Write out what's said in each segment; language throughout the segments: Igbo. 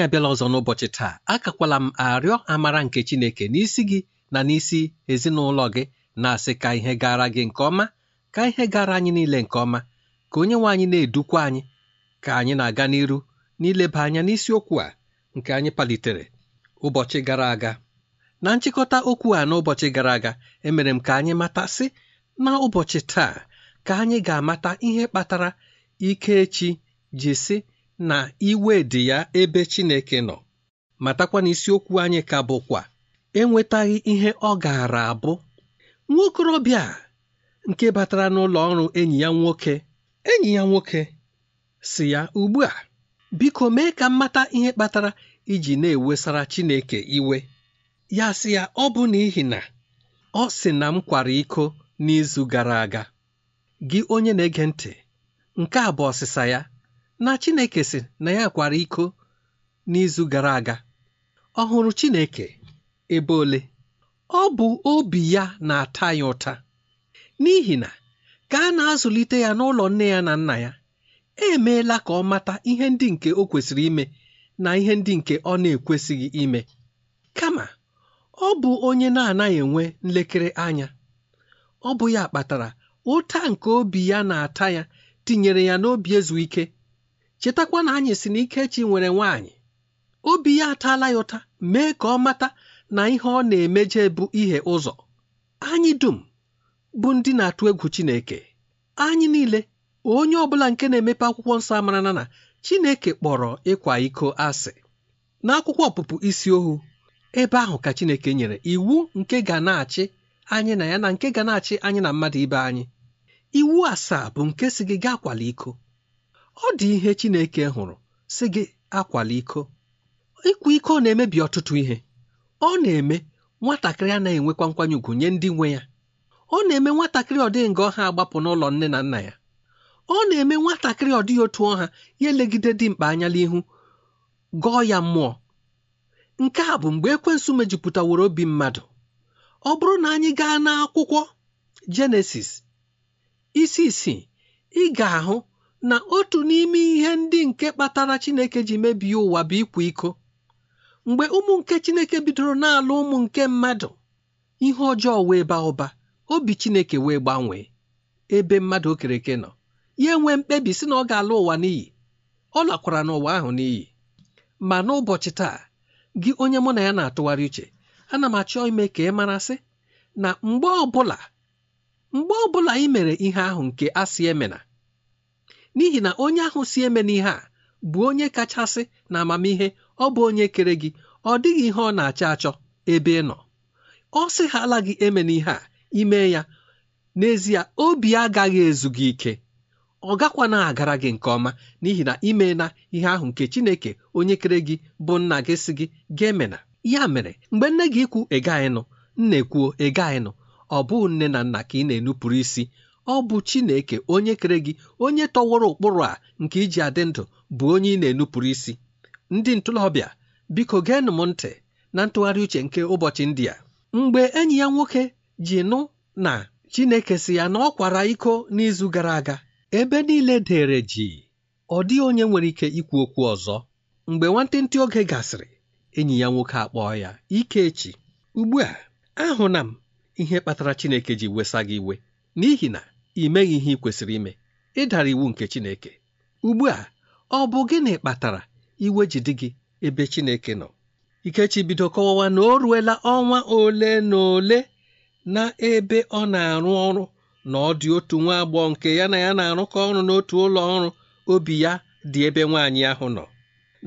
anyị abịala ọzọ n'ụbọchị taa akakwala m arịọ amara nke Chineke n'isi gị na n'isi ezinụlọ gị na-asị ka ihe gara gị nke ọma ka ihe gara anyị niile nke ọma ka onye nwe anyị na-edukwa anyị ka anyị na-aga n'iru n'ileba anya n'isiokwu a nke anyị palitere ụbọchị gara aga na nchịkọta okwu a n'ụbọchị gara aga emere m ka anyị matasị na taa ka anyị ga-amata ihe kpatara ike ji sị na iwe dị ya ebe Chineke nọ matakwa na isiokwu anyị ka bụkwa enwetaghị ihe ọ gaara abụ a. nke batara n'ụlọ ọrụ enyi ya nwoke enyi ya nwoke si ya ugbu a biko mee ka mata ihe kpatara iji na-ewesara Chineke iwe ya sị ya ọ bụ n'ihi na ọ sị na m kwara iko n'izu gara aga gị onye na-ege ntị nke a bụ ọsịsa ya na Chineke sị na ya kwara iko n'izu gara aga ọ hụrụ Chineke ebe ole ọ bụ obi ya na-ata ya ụta n'ihi na ka a na-azụlite ya n'ụlọ nne ya na nna ya emeela ka ọ mata ihe ndị nke o kwesịrị ime na ihe ndị nke ọ na-ekwesịghị ime kama ọ bụ onye na-anaghị enwe nlekere anya ọ bụ ya kpatara ụta nke obi ya na-ata ya tinyere ya n'obi ezu ike chetakwa na anyị si na Ikechi nwere nwaanyị obi ya ataala ya ụta mee ka ọ mata na ihe ọ na-emeje bụ ihe ụzọ anyị dum bụ ndị na-atụ egwu Chineke anyị niile onye ọbụla nke na-emepe akwụkwọ nsọ amara na Chineke kpọrọ ịkwa iko asị n'akwụkwọ ọpụpụ isi ohu ebe ahụ ka Chineke nyere iwu nke ga na-achị anyị na ya na nke ga na-achị anyị na mmadụ ibe anyị iwu asaa bụ nke si gị gaa kwala iko ọ dị ihe Chineke hụrụ sị gị akwala iko ịkwa iko na-emebi ọtụtụ ihe ọ na-eme nwatakịrị anaghị enwekwa nkwanye ugwu nye ndị nwe ya ọ na-eme nwatakịrị ọ nga ọha agbapụ n'ụlọ nne na nna ya ọ na-eme nwatakịrị ọ otu ọha ya elegide dimkpa anya n'ihu gọọ ya mmụọ nke a bụ mgbe ekwensu mejupụtaworo obi mmadụ ọ bụrụ na anyị gaa n'akwụkwọ Jenesis isi isii ị ga-ahụ na otu n'ime ihe ndị nke kpatara Chineke ji mebie ụwa bụ ịkwa iko mgbe ụmụ nke Chineke bidoro na-alụ ụmụ nke mmadụ ihe ọjọọ wee baa ụba obi Chineke wee gbanwee ebe mmadụ okereke nọ ya nwee mkpebi si na ọ ga-ala ụwa n'iyi ọ lakwara n'ụwa ahụ n'iyi ma n'ụbọchị taa gị onye mụ na ya na-atụgharị uche ana m achọ ime ka ị marasị na mgbe ọbụla mgbe ọbụla ị mere ihe ahụ nke asị emena n'ihi na onye ahụ si eme n'ihe a bụ onye kachasị na amamihe ọ bụ onye kere gị ọ dịghị ihe ọ na-achọ achọ ebe ị nọ ọ sị ha ala gị eme n'ihe a ime ya n'ezie obi agaghị ezu gị ike ọ gakwa na agara gị nke ọma n'ihi na ime na ihe ahụ nke Chineke onye kere gị bụ nna gị si gị ga-emena ya mere mgbe nne gị ikwu ịgaghị nụ nna ekwuo ịgaghị nụ ọ bụghị nne na nna ka ị na-enupụrụ isi ọ bụ Chineke onye kere gị onye tọworo ụkpụrụ a nke iji adị ndụ bụ onye ị na-enupụrụ isi ndị ntụlọbịa biko geenụ m ntị na ntụgharị uche nke ụbọchị ndị a mgbe enyi ya nwoke ji nụ na Chineke si ya na ọ kwara iko n'izu gara aga ebe niile dere ji ọ dịghị onye nwere ike ikwu okwu ọzọ mgbe nwantịntị oge gasịrị enyi ya nwoke akpọọ ya Ikechi ugbu a ahụna m ihe kpatara Chineke ji wesa gị iwe n'ihi na Ị meghị ihe ị kwesịrị ime ị dara iwu nke Chineke ugbu a ọ bụ gịnị kpatara iwe ji dị gị ebe Chineke nọ Ikechi bido kọwawa na o ruela ọnwa ole na ole na ebe ọ na-arụ ọrụ na ọ dị otu nwa agbọghọ nke ya na ya na-arụkọ ọrụ n'otu ụlọ ọrụ obi ya dị ebe nwaanyị ahụ nọ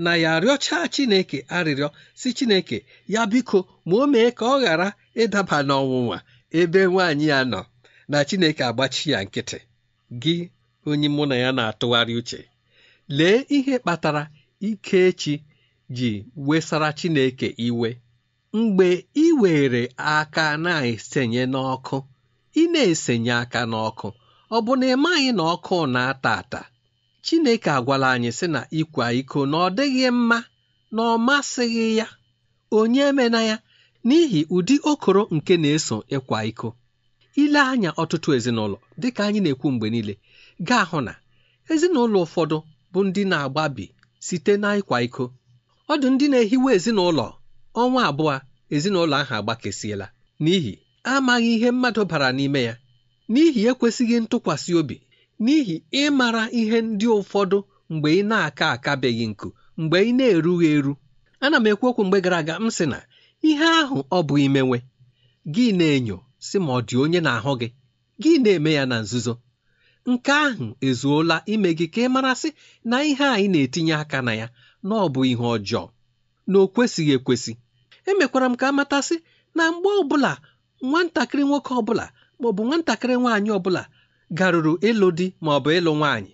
na ya arịọcha Chineke arịrịọ si Chineke ya biko ma o mee ka ọ ghara ịdaba n'ọnwụnwa ebe nwaanyị ya nọ na Chineke agbachi ya nkịtị gị onye mụ na ya na-atụgharị uche lee ihe kpatara ike echi ji wesara Chineke iwe mgbe ị were aka na-esenye n'ọkụ ị na-esenye aka n'ọkụ ọ bụ na ị maghị na ọkụ na-ata ata Chineke agwala anyị sị na ịkwa iko na ọ dịghị mma na ọ masịghị ya onye emena ya n'ihi ụdị okoro nke na-eso ịkwa iko ile anya ọtụtụ ezinụlọ dịka anyị na-ekwu mgbe niile ga-ahụ na ezinụlọ ụfọdụ bụ ndị na-agbabi site na ịkwa iko ọ ndị na-ehiwe ezinụlọ ọnwa abụọ ezinụlọ ahụ agbakesiela n'ihi amaghị ihe mmadụ bara n'ime ya n'ihi ekwesịghị ntụkwasị obi n'ihi ịmara ihe ndị ụfọdụ mgbe ị na-aka akabeghị nku mgbe ị na-erughị eru ana m ekwu okwu mgbe gara aga m sị na ihe ahụ ọ bụ imenwe gị na-enyo si ma ọ dị onye na-ahụ gị gị na-eme ya na nzuzo nke ahụ ezuola ime gị ka ị marasị na ihe anyị na-etinye aka na ya na ọ bụ ihe ọjọọ na o kwesịghị ekwesị emekwara m ka matasị na mgbe ọbụla nwatakịrị nwoke ọbụla maọbụ nwatakịrị nwaanyị ọbụla garuru ịlụ di maọbụ ịlụ nwaanyị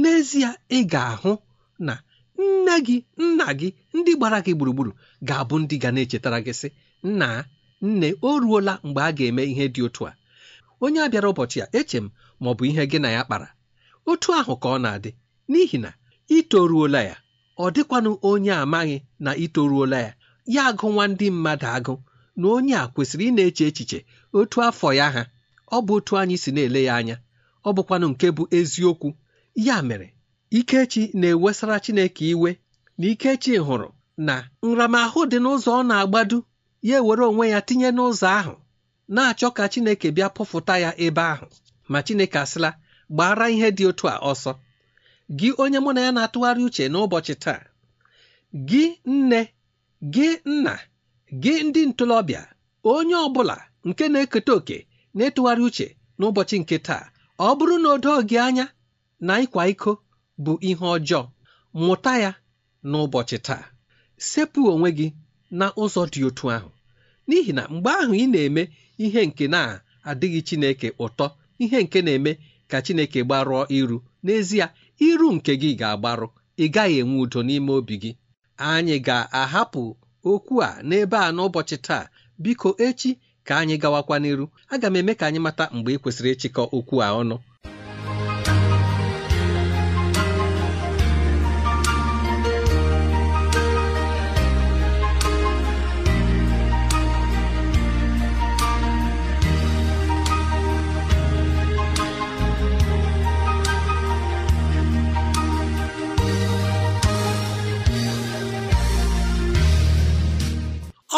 n'ezie ị ga-ahụ na nne gị nna gị ndị gbara gị gburugburu ga-abụ ndị ga na-echetara gị sị nna nne o ruola mgbe a ga-eme ihe dị otu a onye a bịara ụbọchị a eche m ma ọ bụ ihe gị na ya kpara otu ahụ ka ọ na-adị n'ihi na itoruola ya ọ dịkwanụ onye amaghị na itoruola ya ya agụnwa ndị mmadụ agụ na onye a kwesịrị ị na-eche echiche otu afọ ya ha ọ bụ otu anyị si na-ele ya anya ọ bụkwanụ nke bụ eziokwu ya mere Ikechi na-ewesara Chineke iwe na Ikechi hụrụ na nramahụ dị n'ụzọ ọ na agbado ya ewere onwe ya tinye n'ụzọ ahụ na-achọ ka Chineke bịa pụfụta ya ebe ahụ ma Chineke asịla gbara ihe dị otu a ọsọ gị onye mụ na ya na-atụgharị uche n'ụbọchị taa gị nne gị nna gị ndị ntorobịa onye ọ bụla nke na-eketa oke na-etụgharị uche n'ụbọchị nke taa ọ bụrụ na odo gị anya na ịkwa iko bụ ihe ọjọọ mụta ya n'ụbọchị taa sepụ onwe gị na ụzọ dị otu ahụ n'ihi na mgbe ahụ ị na-eme ihe nke na-adịghị Chineke ụtọ ihe nke na-eme ka Chineke gbarụọ iru n'ezie iru nke gị ga-agbarụ ị gaghị enwe udo n'ime obi gị anyị ga-ahapụ okwu a n'ebe a n'ụbọchị taa biko echi ka anyị gawakwa n'iru aga m eme ka anyị mata mgbe ị kwesịrị ịchịkọ okwu a ọnụ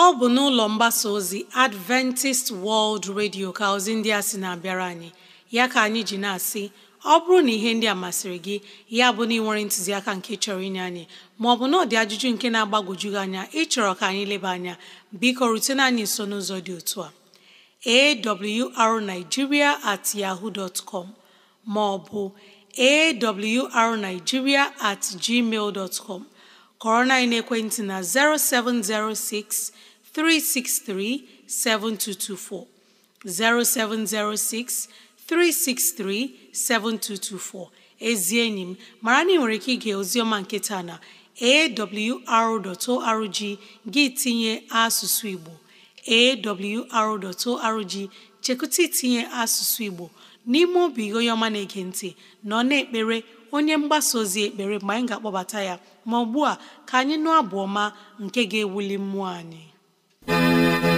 ọ bụ n'ụlọ mgbasa ozi Adventist World Radio ka ozi ndị a sị na-abịara anyị ya ka anyị ji na-asị ọ bụrụ na ihe ndị a masịrị gị ya bụ na ị nwere ntụziaka nke chọrọ inye anyị maọbụ na ọ dị ajụjụ nke na-agbagwoju gị anya ịchọrọ ka anyị leba anya biko rutena anyị nso n'ụzọ dị otu a arigiria at yaho dot com maọbụ arigiria at gmail com kọrọ na ekwentị na 0706 363 7224. 0706 363 7224. Ezi enyi m mara na ị nwere ike ige oziọma nke taa na awr.org gị tinye asụsụ Igbo awr.org chekụta itinye asụsụ Igbo n'ime obi gị onye ọma na-ege ntị nọ na-ekpere onye mgbasa ozi ekpere mgbe anyị ga-akpọbata ya ma ugbu a ka anyị nụ abụọma nke ga-ewuli mmụọ anyị Música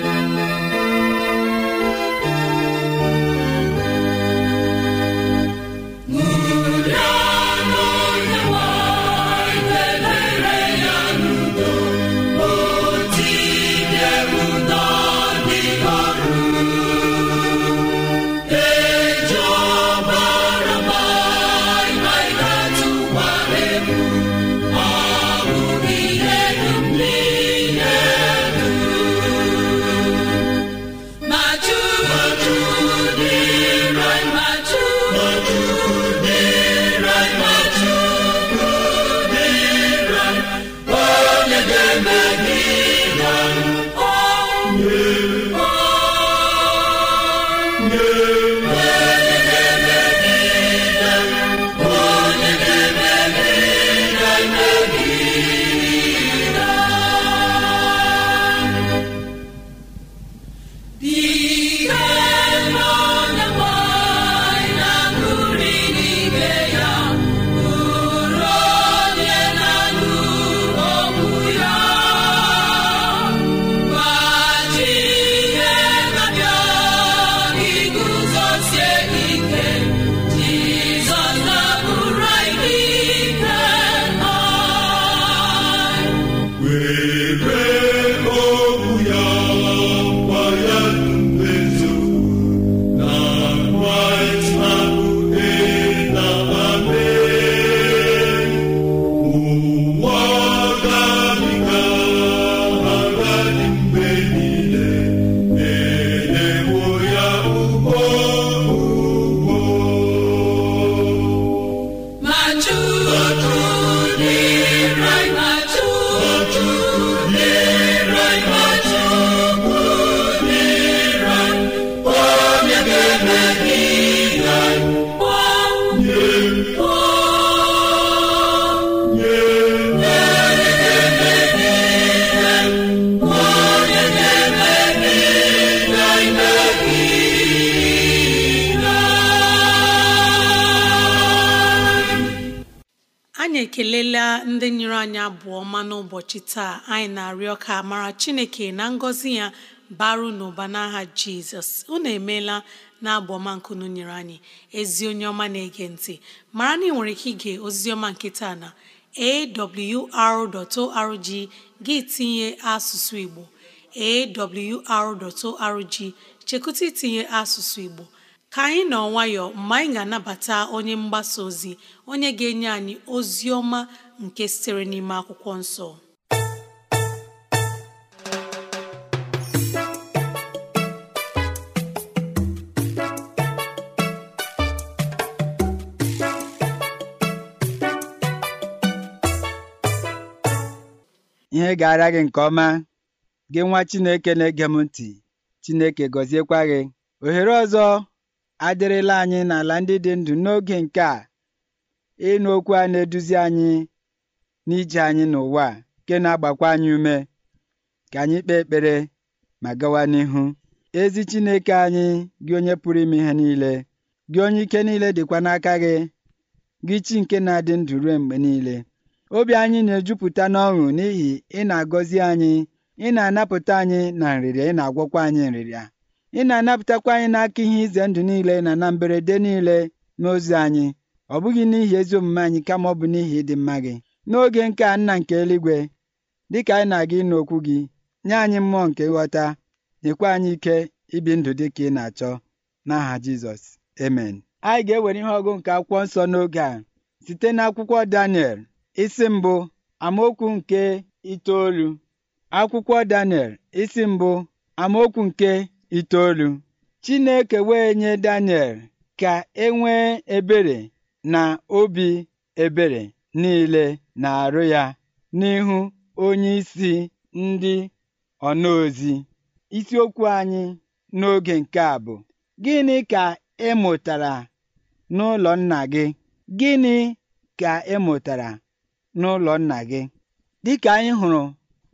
ekelela ndị nyere anyị abụọ ọma n'ụbọchị taa anyị na-arịọ ka mara chineke na ngọzi ya baru n'ụba n'aha jizọs unu emeela na abụ ọma nkunu anyị ezi onye ọma na-ege ntị mara na ị nwere ike ige ozi ọma nke taa na awr.org gị tinye asụsụ igbo awr.org chekụta itinye asụsụ igbo ka anyị nọ nwayọ mgbe anyị ga-anabata onye mgbasa ozi onye ga-enye anyị ozi ọma nke sitere n'ime akwụkwọ nsọ ihe ga-ara gị nke ọma gị nwa Chineke na-ege m ntị Chineke gọziekwa gị ohere ọzọ adịrịla anyị n'ala ndị dị ndụ n'oge nke a ịnụ okwu a na-eduzi anyị n'ije anyị n'ụwa nke na-agbakwa anyị ume ka anyị kpee ekpere ma gawa n'ihu ezi Chineke anyị gị onye pụrụ ime ihe niile gị onye ike niile dịkwa n'aka gị gị chi nke na-adị ndụ ruo mgbe niile obi anyị na-ejupụta n'ọṅụ n'ihi ị na-agọzi anyị ị na-anapụta anyị na nrịrịa ị na-agwọkwa anyị nrịrịa ị na-anapụtakwa anyị n'aka ihe ize ndụ niile na na mberede niile n'ozi anyị ọ bụghị n'ihi ezi omume anyị kama ọ bụ n'ihi ịdị mma gị n'oge nke a nna nke eluigwe dịka anyị na-aga ịnụ okwu gị nye anyị mmụọ nke nghọta nyekwa anyị ike ibi ndụ dị ka ị na-achọ n'aha Jizọs amen anyị ga-ewere ihe ọgụ nke akwụkwọ nsọ n'oge a site n'akwụkwọ Daniel isi mbụ amaokwu nke itoolu akwụkwọ Daniel isi mbụ amaokwu nke itoolu Chineke wee nye Daniel ka e nwee ebere na obi ebere niile na-arụ ya n'ihu onyeisi ndị ọnaozi isiokwu anyị n'oge nke a bụ gịnị ka ị mụtara n'ụlọ nna gị gịnị ka ị mụtara n'ụlọ nna gị dịka anyị hụrụ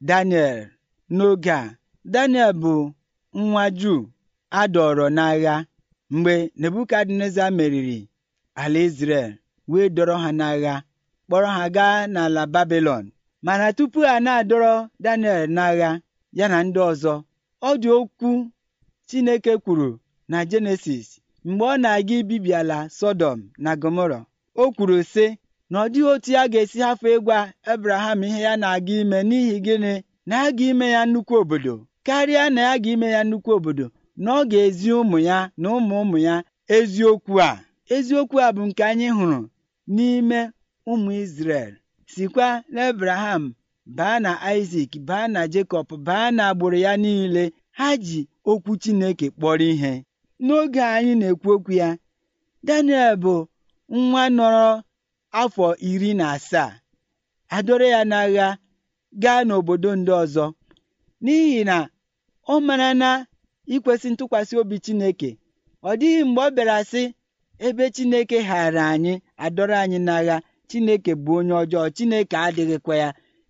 Daniel n'oge a Daniel bụ nwa Juu adọrọ n'agha mgbe Nebukadneza meriri ala isrel wee dọrọ ha n'agha kpọrọ ha gaa n'ala Babilọn mana tupu a na-adọrọ Daniel n'agha ya na ndị ọzọ ọ dị okwu Chineke kwuru na Jenesis mgbe ọ na-aga ibibi ala Sọdọm na gomoro o kwuru sị na ọ dịghị otu ya ga-esi hafụ ịgwa Abraham ihe ya na-aga ime n'ihi gịnị na aga ime ya nnukwu obodo karịa na ya ga-ime ya nnukwu obodo na ọ ga-ezi ụmụ ya na ụmụ ụmụ ya eziokwu a eziokwu a bụ nke anyị hụrụ n'ime ụmụ isrel sikwa ebraham baa na Isaac baa na Jekọb baa na agbụrụ ya niile ha ji okwu Chineke kpọrọ ihe n'oge anyị na-ekwu okwu ya Daniel bụ nwa nọrọ afọ iri na asaa adọrọ ya n'agha gaa n'obodo ndị ọzọ n'ihi na ọ mara na ikwesị ntụkwasị obi Chineke ọ dịghị mgbe ọ bịara sị ebe Chineke ghara anyị adọrọ anyị n'agha Chineke bụ onye ọjọọ Chineke adịghịkwa ya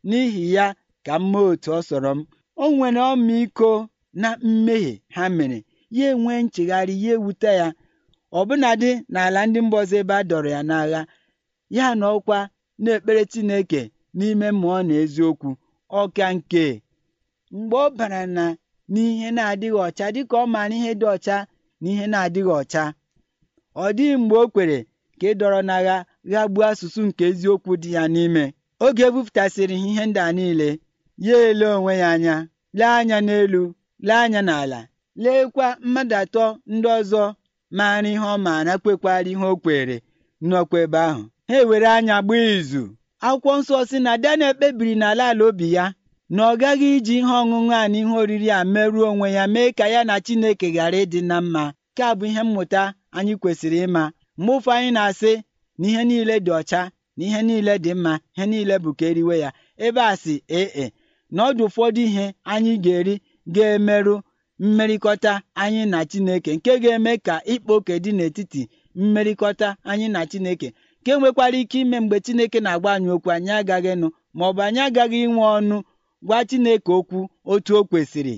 n'ihi ya ka m otu ọ sọrọ m o nwere ọmịiko na mmehie ha mere ya nwee nchegharị ya ewute ya ọbụnadị n'ala ndị mba ebe a dọrọ ya n'agha ya na ọkwa na-ekpere Chineke n'ime mmụọ na eziokwu ọka nke mgbe ọ bara na n'ihe na-adịghị ọcha dịka ọ maara ihe dị ọcha na ihe na-adịghị ọcha ọ dịghị mgbe o kwere ka ịdọrọ n'agha gbuo asụsụ nke eziokwu dị ya n'ime oge ebupụtasịrị ihe ndị a niile ya ele onwe ya anya lee anya n'elu lee anya n'ala leekwa mmadụ atọ ndị ọzọ maara ihe ọ maara kwekwara ihe o kwere nnọkwa ebe ahụ ha ewere anya gbaa izu akwụkwọ nsọ si na Daniel kpebiri n'ala ala obi ya na ọ gaghị iji ihe ọṅụṅụ a na ihe oriri a merụọ onwe ya mee ka ya na Chineke ghara ịdị na mma nke a bụ ihe mmụta anyị kwesịrị ịma mgbe ụfọ anyị na-asị na ihe niile dị ọcha na ihe niile dị mma ihe niile bụ ka eriwe ya ebe a sị ee e, na ọdụ ụfọdụ ihe anyị ga-eri ga-emerụ mmerịkọta anyị na Chineke nke ga-eme ka ịkpa dị n'etiti mmerịkọta anyị na Chineke nke nwekwara ike ime mgbe Chineke na-agba anyị okwu anyị agaghị nụ ma ọ bụ anyị agaghị inwe ọnụ gwa Chineke okwu otu o kwesịrị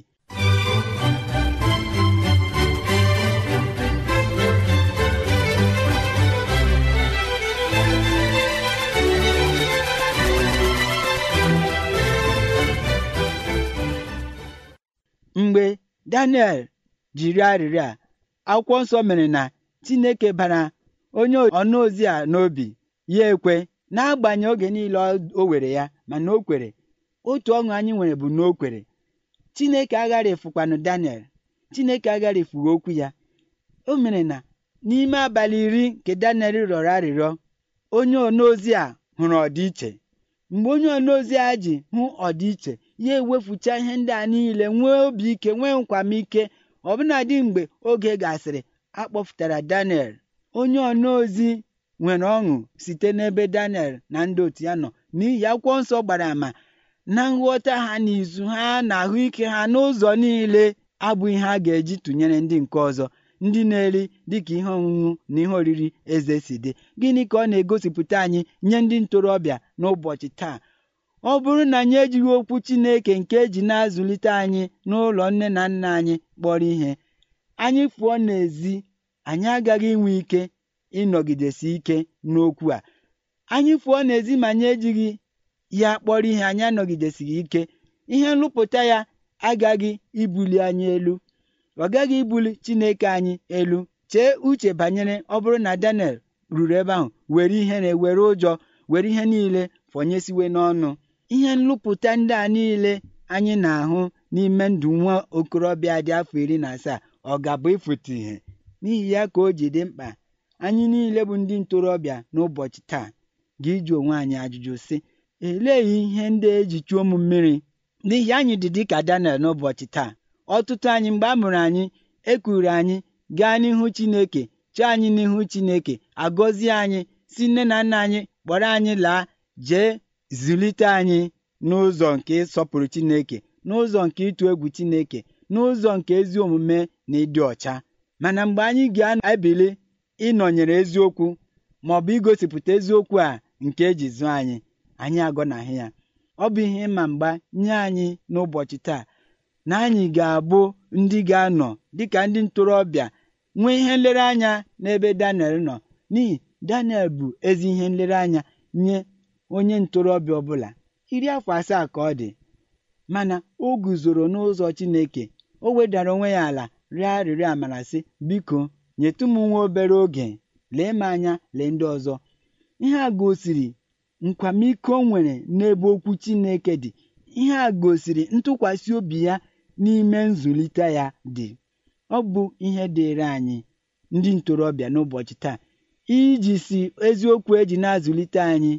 mgbe Daniel jiri arịrịọ a akwụkwọ nsọ mere na Chineke bara onye ọnụ ozi a n'obi ya ekwe n'agbanyeghị oge niile o were ya mana o kwere otu ọṅụ anyị nwere bụ na o kwere chineke agharịfukwanụ daniel chineke agharịfughị okwu ya o mere na n'ime abalị iri nke daniel rịọrọ arịrịọ onye onozi a hụrụ ọdịiche mgbe onye onozi a ji hụ ọdịiche ya ewefucha ihe ndị a niile nwee obi ike nwee nkwamike ọbụnadị mgbe oge gasịrị akpọpụtara daniel onye onozi nwere ọṅụ site n'ebe daniel na ndị otu ya nọ n'ihi akwụkwọ nsọ gbara àmà na nghọta ha na izu ha na ahụike ha n'ụzọ niile abụghị ha ga-eji tụnyere ndị nke ọzọ ndị na-eri dịka ihe ọṅụṅụ na ihe oriri eze si dị gịnị ka ọ na-egosipụta anyị nye ndị ntorobịa n'ụbọchị taa ọ bụrụ na anyị ejighị okwu Chineke nke eji na-azụlite anyị n'ụlọ nne na nna anyị kpọrọ ihe anyị pụọ n'ezi anyị agaghị inwe ike ịnọgidesi ike n'okwu a anyị pụọ n'ezi ma anyị ejighị ya kpọrọ ihe anyị anọgidesighị ike ihe nrụpụta ya agaghị ibuli anyị elu ọ gaghị ibuli Chineke anyị elu chee uche banyere ọ bụrụ na Daniel ruru ebe ahụ were ihere were ụjọ were ihe niile fọnyesiwe n'ọnụ ihe nlụpụta ndị a niile anyị na-ahụ n'ime ndụ nwa okorobịa dị afọ iri na asaa ọ ga-abụ ịfụta ihe n'ihi ya ka o ji dị mkpa anyị niile bụ ndị ntorobịa n'ụbọchị taa ga-iji onwe anyị ajụjụ sị Elee ihe ndị eji chuo m mmiri n'ihi anyị dị dịka Daniel n'ụbọchị taa ọtụtụ anyị mgbe a mụrụ anyị ekwuru anyị gaa n'ihu Chineke chọọ anyị n'ihu Chineke agọzie anyị si nne na nna anyị kpọrọ anyị laa jee zụlite anyị n'ụzọ nke ịsọpụrụ Chineke n'ụzọ nke ịtụ egwu Chineke n'ụzọ nke ezi omume na ịdị ọcha mana mgbe anyị ga-ebili ịnọnyere eziokwu ma ọ bụ igosipụta eziokwu a nke eji zụọ anyị anyị agọnahụ ya ọ bụ ihe ịma mgba nye anyị n'ụbọchị taa na anyị ga-abụ ndị ga-anọ dịka ndị ntorobịa nwee ihe nlereanya n'ebe Daniel nọ n'ihi Daniel bụ ezi ihe nlereanya nye onye ntorobịa ọbụla iri afọ asaa ka ọ dị mana o guzoro n'ụzọ Chineke o wedara onwe ya ala rịọ arịrịọ amara sị biko nyetụ m nwa obere oge lee m anya lee ndị ọzọ ihe a gosiri nkwamiko o nwere n'ebe okwu Chineke dị ihe a gosiri ntụkwasị obi ya n'ime nzụlite ya dị ọ bụ ihe dịịrị anyị ndị ntorobịa n'ụbọchị taa iji si eziokwu eji na-azụlite anyị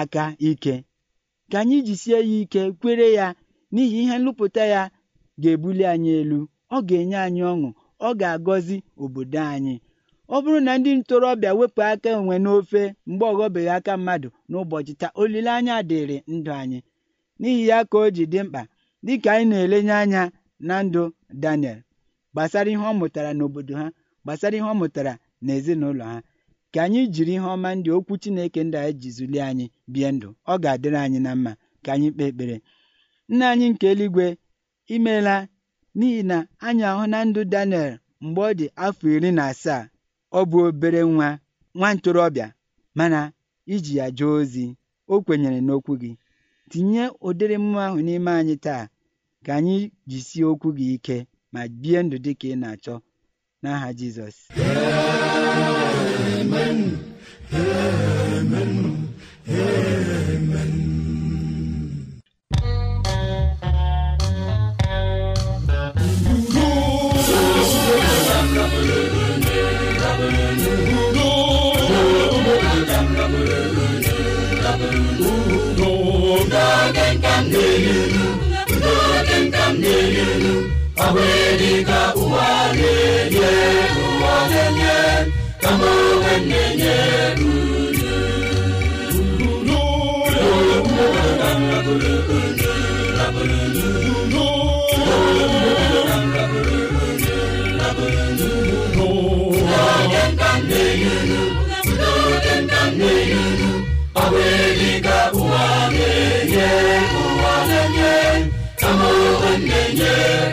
aka ike ka anyị jisie ya ike kwere ya n'ihi ihe nlụpụta ya ga-ebuli anyị elu ọ ga-enye anyị ọṅụ ọ ga-agọzi obodo anyị ọ bụrụ na ndị ntorobịa wepụ aka onwe n'ofe mgbe ọghọbeghị aka mmadụ n'ụbọchị taa olileanya dịrị ndụ anyị n'ihi ya ka o ji dị mkpa dịka anyị na-elenye anya na ndụ Daniel gbasara ihe ọ mụtara n'obodo ha gbasara ihe ọ mụtara n'ezinụlọ ha ka anyị jiri ihe ọma ndị okwu Chineke ndị anyị ji anyị bie ndụ ọ ga-adịrị anyị na mma ka anyị kpee ekpere nna anyị nke eluigwe imeela n'ihi na anyị ahụ na ndụ Daniel mgbe ọ dị afọ iri na asaa ọ bụ obere nwa nwa ntorobịa mana iji ya jee ozi o kwenyere n'okwu gị tinye ụdịrị mmụọ ahụ n'ime anyị taa ka anyị jisie okwu gị ike ma bie ndụ dị ka ị na-achọ n'aha Jizọs m na-elu ilu udo oge m na-elu ilu ọ ụwa na-enye ụwa na-enye kama onwe m na-enye Yeah.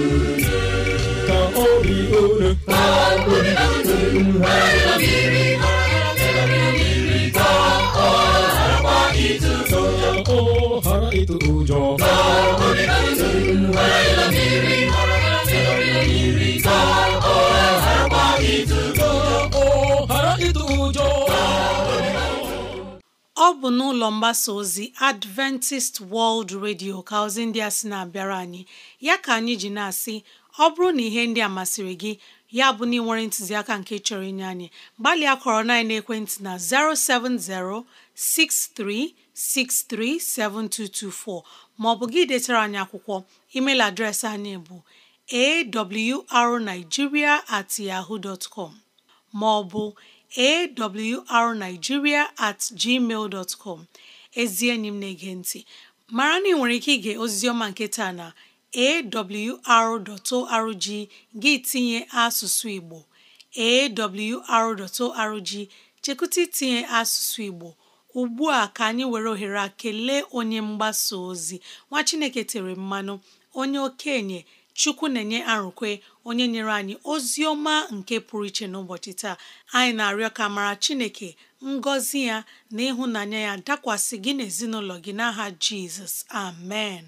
bụ n'ụlọ mgbasa ozi Adventist World Radio ka ozi ndị a sị na-abịara anyị ya ka anyị ji na-asị ọ bụrụ na ihe ndị a masịrị gị ya bụ na ị ntụziaka nke chọrọ inye anyị gbalịa kọrọ na ekwentị na 07063637224 maọbụ gị detara anyị akwụkwọ email adreesị anyị bụ awrnigeria at yahoo maọbụ arnigiria at gmail com ezi enyi m na-ege ntị mara na ị nwere ike ige ọma nke taa na awr.org gị tinye asụsụ Igbo awr.org chekụta itinye asụsụ Igbo ugbu a ka anyị were ohere a kelee onye mgbasa ozi nwa Chineke tere mmanụ onye okenye Chukwu na-enye arụkwe onye nyere anyị ozi ọma nke pụrụ iche n'ụbọchị taa anyị na-arịọ ka mara Chineke ngọzi ya na ịhụnanya ya dakwasị gị na ezinụlọ gị n'aha Jizọs amen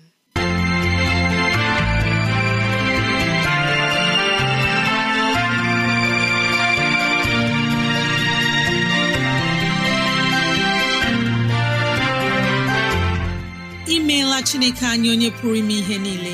imeela Chineke anyị onye pụrụ ime ihe niile